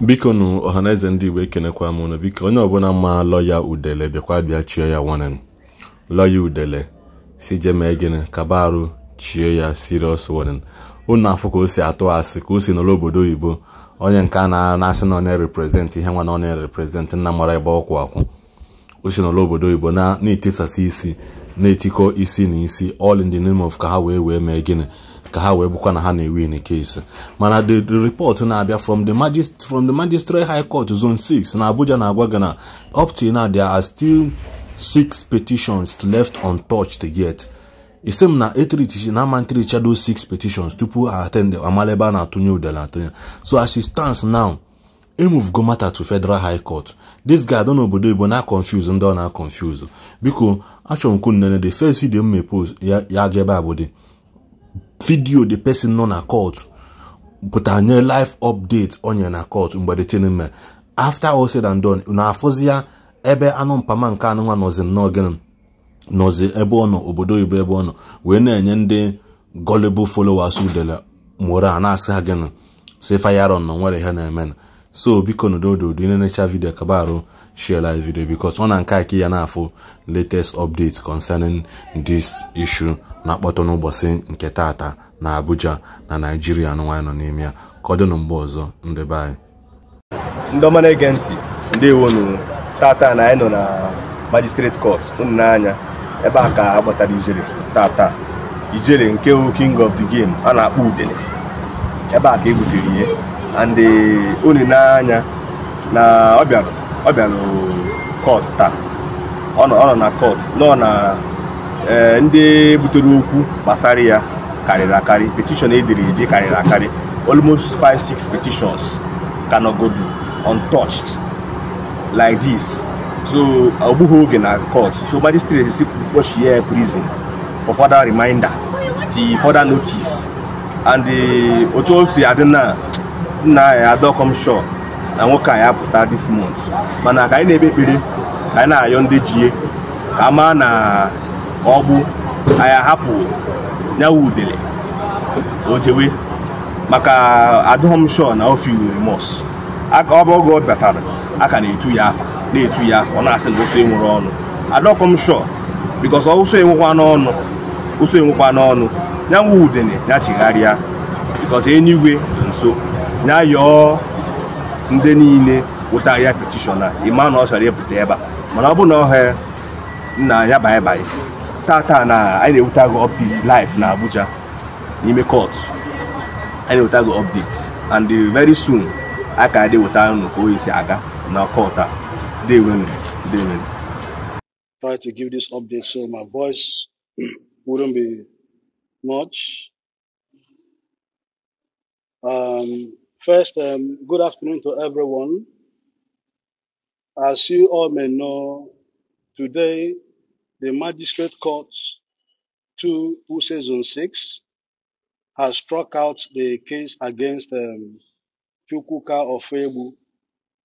biko nụ ọhaneze ndị igbo ekenekwa m ụnụ biko onye ọbụla ma lọya udele bịakwa bịa chie ya nwanne m lọya udele si je mee gịnị kaba chie ya siriọs warning ụnụ afọ ka o si atụ asị ka o si n'ụlọ obodo oyibo onye nke a na-asị na ọ na ihe nwa na ọ na-ereprezentị nna mara ebe ọkwụ akwụ o si n'ụlọ obodo oyibo na-etisasị isi na-etikọ isi na isi all in the name of ka ha wee wee mee gịnị ka ha wee bụkwa na ha na-ewin case mana the report na-abịa from the magist from the magistrate high court zone 6 na abuja na-agwa gị na up till now there are still six petitions left untouched yet isi e same na na ama do six petitions tupu atend amala ebe a na-atụnye udele atụnye so as e stands now emove go matter to federal high court this guy don obodo igbo na confuse ndị ọ na confuse biko achọrọ m kwunnene the first video m mepose ya ga ebe abụdị vidiyo the person nọ na court pụta nye life update onye na court mgbe the thing mere after all said and done na afụzi ebe anụ mpama nke anụnwa nọzi nnọọ gịnị nọzi ebe ọ nọ obodo oyibo ebe ọ nọ wee na-enye ndị gullible followers udele mora na-asị ha gịnị si fayaron nọ nwere ihe na-eme so biko nodododo ị na-enecha kabarụ share like video because ọ na nke aki ya na-afụ latest update concerning this issue na-akpọtọ n'ụbọchị nke tata na Abuja na Naijiria nwaanyị nọ n'ime ya ka mgbe ọzọ ndị be anyị ndị ọma na-ege ntị ndị nu tata na anyị nọ na magistrate court unu n'anya ebe a ka a kpọtara ijere tata ijere nke wu king of the game a na-akpọ udele ebe a ka e butere ihe and unu eh, n'anya na ọ bịara ọ bịara kọt taa ọ nọ na kọt nọ na e, ndị butere okwu gbasara ya karịrị akarị petishọn ediri eji karịrị akarị almost 5-6 petitions ka go untouched like this so ọ oge na court so magistrate si ya prison for further reminder ti further notice and e, otu o si adị na nna ya adọkọm shore na nwoke a ya apụta dis month mana ka anyị na-ekpe ekpere ka anyị na-ayọ ndị jie ka a maa na ọgbụ anyị ahapụ nyawa udele ojewe maka adụghọm shọ na ofe remọs ọba oge ọ batara aka na-etu ya afa na-etu ya afa ọ na-asị na ụsọ enwere ọnụ adọkọm shọ bikọs ụsọ enwekwa n'ọnụ ụsọ enwekwa n'ọnụ nyanwu udele ya chigharịa bikọs enyigwe nso ya yọọ ndị niile wụtara ya petishọna ịma na ọ chọrọ ịpụta ebe a mana ọ bụ na ọhịa nna ya baịbaị tata na anyị na-eweta gị update live na Abuja n'ime court anyị na-eweta gị update and very soon a ka dị weta unu ka oyi si aga na court a dewenu dewenu try to give this update so my voice wouldn't be much um, First, um, good afternoon to everyone. As you all may know, today the Magistrate Court 2 Use 6 has struck out the case against um, Chukwuka Ofebu,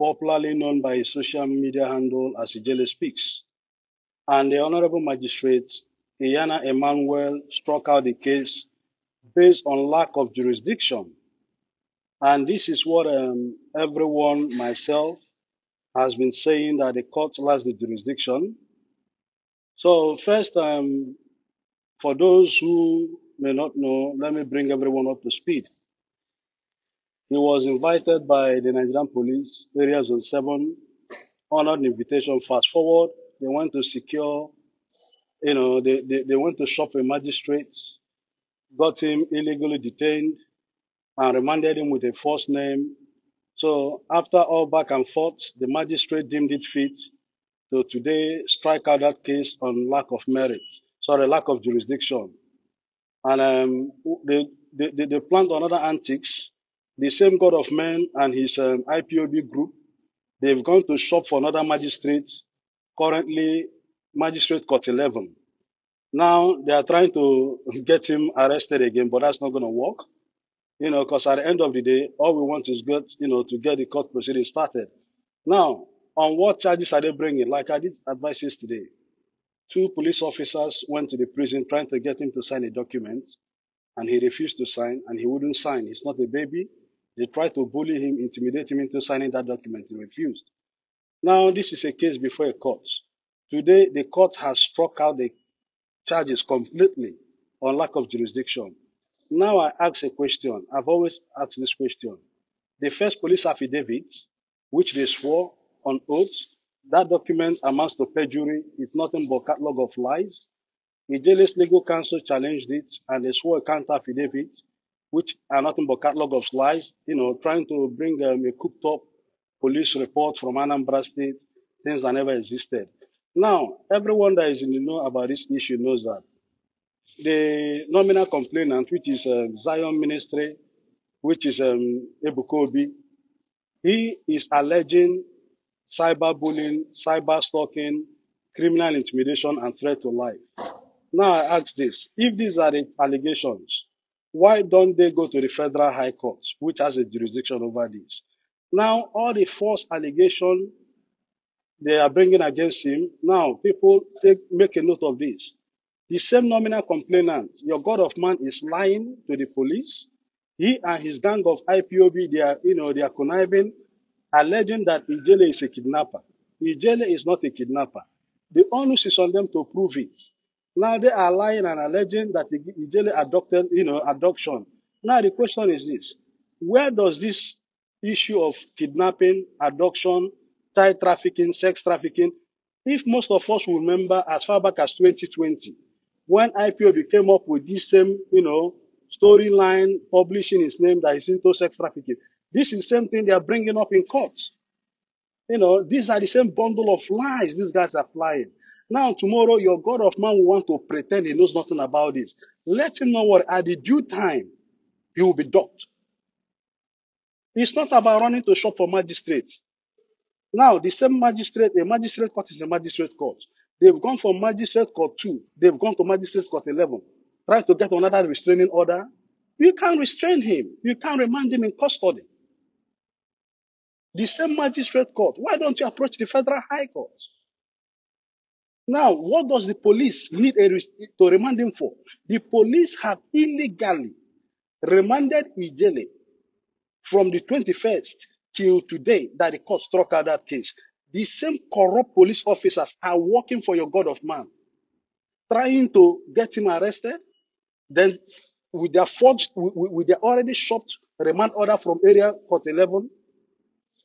popularly known by his social media handle as Ijele Speaks. And the Honorable Magistrate Iyana Emmanuel struck out the case based on lack of jurisdiction and this is what um, everyone, myself, has been saying that the court lacks the jurisdiction. So first, um, for those who may not know, let me bring everyone up to speed. He was invited by the Nigerian Police, Area Zone 7, honored the invitation. Fast forward, they went to secure, you know, they, they, they went to shop a magistrate, got him illegally detained, and remanded him with a false name. So after all back and forth, the magistrate deemed it fit to today strike out that case on lack of merit, sorry, lack of jurisdiction. And um, they, they, they, they planned another antics. The same God of men and his um, IPOB group, they've gone to shop for another magistrate, currently Magistrate Court 11. Now they are trying to get him arrested again, but that's not going to work. You know, because at the end of the day, all we want is get, you know, to get the court proceedings started. Now, on what charges are they bringing? Like I did advise yesterday, two police officers went to the prison trying to get him to sign a document, and he refused to sign, and he wouldn't sign. He's not a baby. They tried to bully him, intimidate him into signing that document. He refused. Now, this is a case before a court. Today, the court has struck out the charges completely on lack of jurisdiction. Now I ask a question. I've always asked this question. The first police affidavit, which they swore on oath, that document amounts to perjury. It's nothing but catalog of lies. Ijele's legal counsel challenged it, and they swore a counter affidavit, which are nothing but catalog of lies. You know, trying to bring um, a cooked up police report from Anambra State, things that never existed. Now, everyone that is in the know about this issue knows that the nominal complainant, which is um, Zion Ministry, which is um, Ebukobi, he is alleging cyberbullying, cyber stalking, criminal intimidation, and threat to life. Now I ask this, if these are the allegations, why don't they go to the Federal High Court, which has a jurisdiction over this? Now, all the false allegations they are bringing against him, now people take, make a note of this. The same nominal complainant, your God of man is lying to the police. He and his gang of IPOB, they are, you know, they are conniving, alleging that Ijele is a kidnapper. Ijele is not a kidnapper. The onus is on them to prove it. Now they are lying and alleging that Ijele adopted, you know, adoption. Now the question is this. Where does this issue of kidnapping, adoption, child trafficking, sex trafficking, if most of us will remember as far back as 2020, when IPOB came up with this same, you know, storyline, publishing his name that is into sex trafficking, this is the same thing they are bringing up in courts. You know, these are the same bundle of lies these guys are flying. Now, tomorrow, your God of man will want to pretend he knows nothing about this. Let him know what at the due time, he will be docked. It's not about running to shop for magistrates. Now, the same magistrate, a magistrate court is a magistrate court. They've gone from magistrate court 2. They've gone to magistrate court 11. trying to get another restraining order. You can't restrain him. You can't remand him in custody. The same magistrate court. Why don't you approach the federal high court? Now, what does the police need a, to remand him for? The police have illegally remanded Ijele from the 21st till today that the court struck out that case. These same corrupt police officers are working for your God of man, trying to get him arrested. Then, with their forged, with, with their already shopped remand order from area court 11,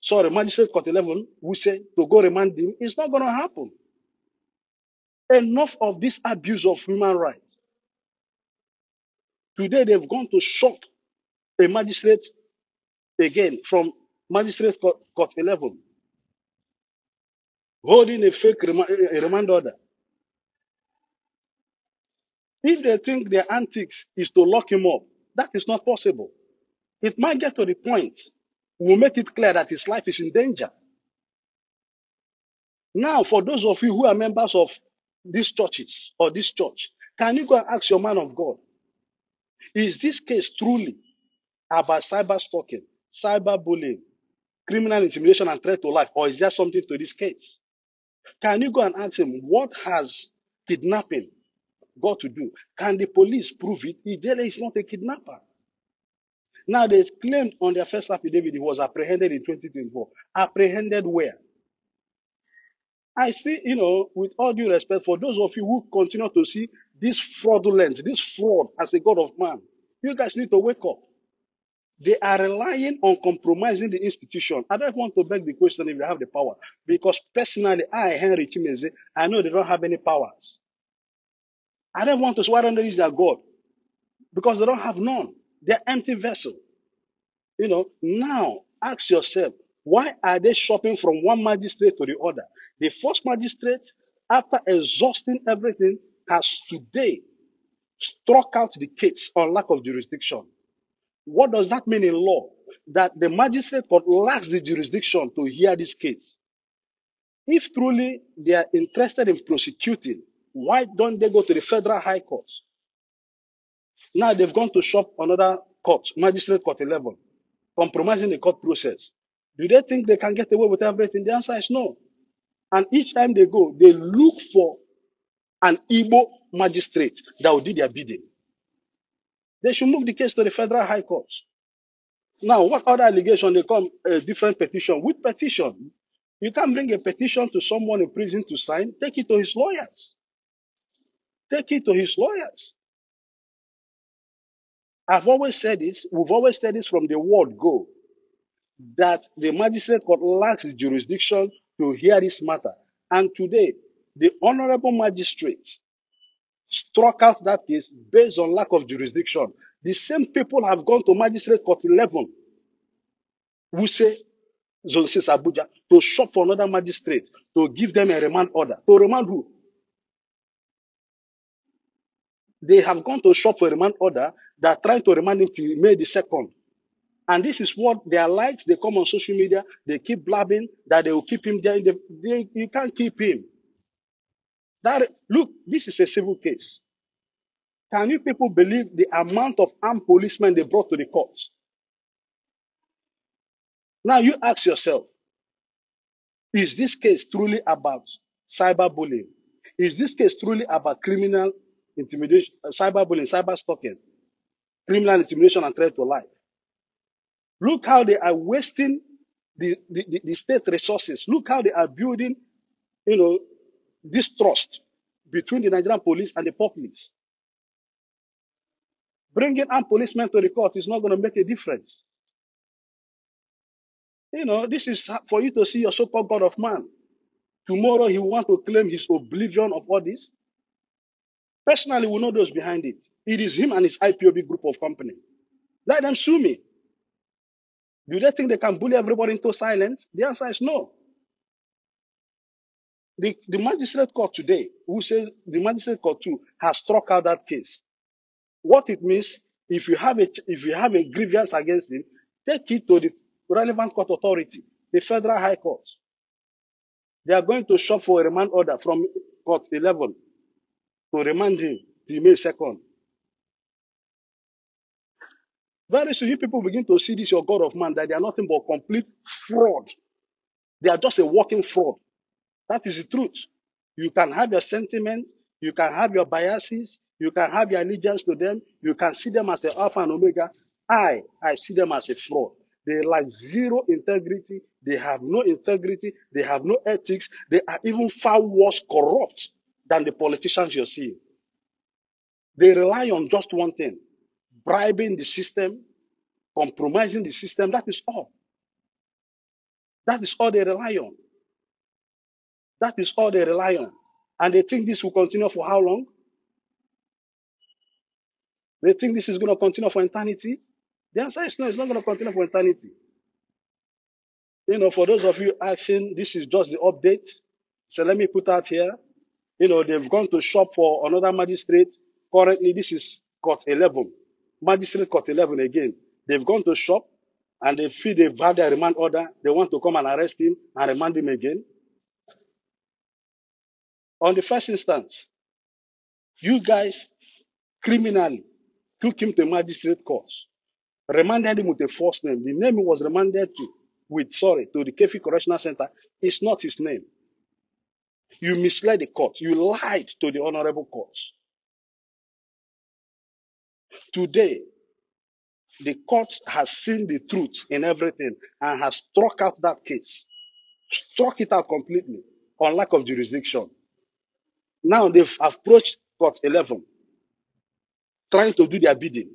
sorry, magistrate court 11, we say to go remand him. It's not going to happen. Enough of this abuse of human rights. Today, they've gone to shop a magistrate again from magistrate court, court 11 holding a fake a remand order. If they think their antics is to lock him up, that is not possible. It might get to the point we'll make it clear that his life is in danger. Now, for those of you who are members of these churches or this church, can you go and ask your man of God, is this case truly about cyber stalking, cyber bullying, criminal intimidation and threat to life, or is there something to this case? Can you go and ask him what has kidnapping got to do? Can the police prove it? He he's not a kidnapper. Now they claimed on their first affidavit he was apprehended in 2024. Apprehended where? I see, you know, with all due respect, for those of you who continue to see this fraudulent, this fraud as a God of man, you guys need to wake up. They are relying on compromising the institution. I don't want to beg the question if they have the power, because personally, I, Henry Chimeze, I know they don't have any powers. I don't want to swear under is their God, because they don't have none. They're empty vessel. You know, now ask yourself, why are they shopping from one magistrate to the other? The first magistrate, after exhausting everything, has today struck out the case on lack of jurisdiction. What does that mean in law? That the magistrate court lacks the jurisdiction to hear this case. If truly they are interested in prosecuting, why don't they go to the federal high court? Now they've gone to shop another court, magistrate court 11, compromising the court process. Do they think they can get away with everything? The answer is no. And each time they go, they look for an Igbo magistrate that will do their bidding. They should move the case to the federal high court. Now, what other allegation they come? A different petition. With petition, you can bring a petition to someone in prison to sign. Take it to his lawyers. Take it to his lawyers. I've always said this. We've always said this from the word go, that the magistrate court lacks jurisdiction to hear this matter. And today, the honorable magistrate struck out that case based on lack of jurisdiction. The same people have gone to magistrate court 11, Wuse, Zone 6 Abuja, to shop for another magistrate, to give them a remand order. To remand who? They have gone to shop for a remand order. They are trying to remand him to May the 2nd. And this is what their like. they come on social media, they keep blabbing that they will keep him there. The, they, you can't keep him. That look, this is a civil case. Can you people believe the amount of armed policemen they brought to the courts? Now you ask yourself, is this case truly about cyberbullying? Is this case truly about criminal intimidation, uh, cyberbullying, cyber stalking, criminal intimidation and threat to life? Look how they are wasting the, the, the, state resources. Look how they are building, you know, distrust between the Nigerian police and the populace. Bringing armed policemen to the court is not going to make a difference. You know, this is for you to see your so-called God of man. Tomorrow he will want to claim his oblivion of all this. Personally, we know those behind it. It is him and his IPOB group of company. Let them sue me. Do they think they can bully everybody into silence? The answer is no the, the magistrate court today, who says the magistrate court too, has struck out that case. What it means, if you have a, if you have a grievance against him, take it to the relevant court authority, the federal high court. They are going to shop for a remand order from court 11 to remand him to May 2nd. Very soon, you people begin to see this, your God of man, that they are nothing but complete fraud. They are just a walking fraud. That is the truth. You can have your sentiment, you can have your biases, you can have your allegiance to them, you can see them as the Alpha and Omega. I, I see them as a fraud. They lack zero integrity, they have no integrity, they have no ethics, they are even far worse corrupt than the politicians you're seeing. They rely on just one thing bribing the system, compromising the system. That is all. That is all they rely on. That is all they rely on. And they think this will continue for how long? They think this is going to continue for eternity. The answer is no, it's not going to continue for eternity. You know, for those of you asking, this is just the update. So let me put out here. You know, they've gone to shop for another magistrate. Currently, this is court 11. Magistrate court 11 again. They've gone to shop and they feel they've had their remand order. They want to come and arrest him and remand him again on the first instance, you guys criminally took him to magistrate court, remanded him with a false name. The name he was remanded to with, sorry, to the Kefi Correctional Center is not his name. You misled the court. You lied to the honorable court. Today, the court has seen the truth in everything and has struck out that case, struck it out completely on lack of jurisdiction. Now they've approached court 11, trying to do their bidding.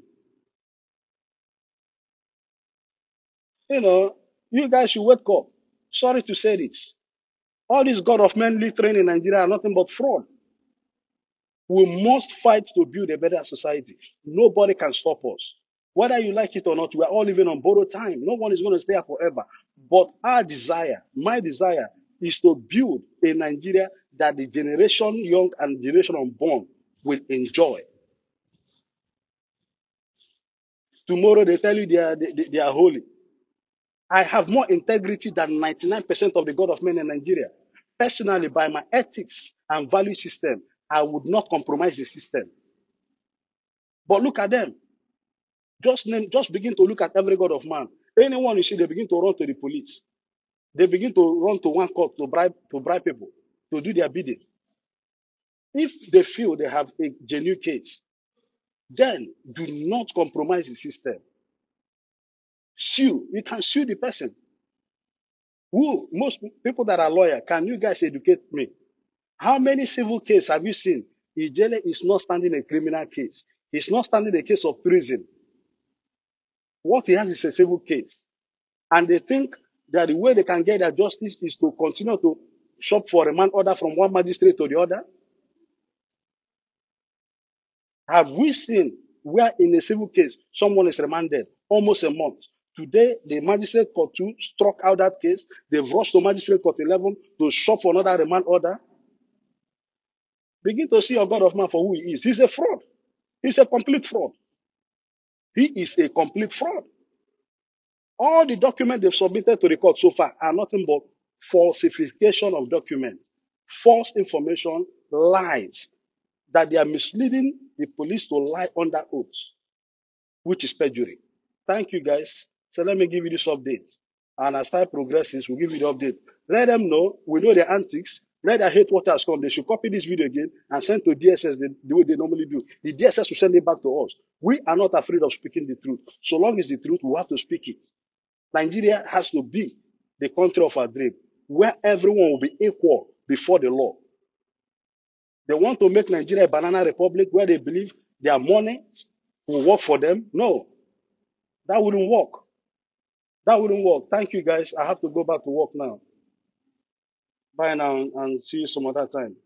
You know, you guys should wake up. Sorry to say this. All this God of manly training in Nigeria are nothing but fraud. We must fight to build a better society. Nobody can stop us. Whether you like it or not, we are all living on borrowed time. No one is going to stay here forever. But our desire, my desire, is to build a Nigeria that the generation young and generation unborn will enjoy. Tomorrow they tell you they are, they, they- are holy. I have more integrity than 99% of the God of men in Nigeria. Personally, by my ethics and value system, I would not compromise the system. But look at them. Just name, just begin to look at every God of man. Anyone you see, they begin to run to the police. They begin to run to one court to bribe to bribe people to do their bidding. If they feel they have a genuine case, then do not compromise the system. Sue, you can sue the person. Who most people that are lawyer, can you guys educate me? How many civil cases have you seen? Ijele is not standing a criminal case. He's not standing a case of treason. What he has is a civil case. And they think that the way they can get their justice is to continue to shop for a man order from one magistrate to the other? Have we seen where in a civil case someone is remanded almost a month? Today, the magistrate court 2 struck out that case. They've rushed to magistrate court 11 to shop for another remand order. Begin to see your God of man for who he is. He's a fraud. He's a complete fraud. He is a complete fraud. All the documents they've submitted to the court so far are nothing but falsification of documents, false information, lies, that they are misleading the police to lie under oath, which is perjury. Thank you guys. So let me give you this update. And as time progresses, we'll give you the update. Let them know. We know their antics. Let their hate what has come. They should copy this video again and send to DSS the, the way they normally do. The DSS will send it back to us. We are not afraid of speaking the truth. So long as the truth, we have to speak it. Nigeria has to be the country of our dream, where everyone will be equal before the law. They want to make Nigeria a banana republic where they believe their money will work for them. No, that wouldn't work. That wouldn't work. Thank you guys. I have to go back to work now. Bye now and see you some other time.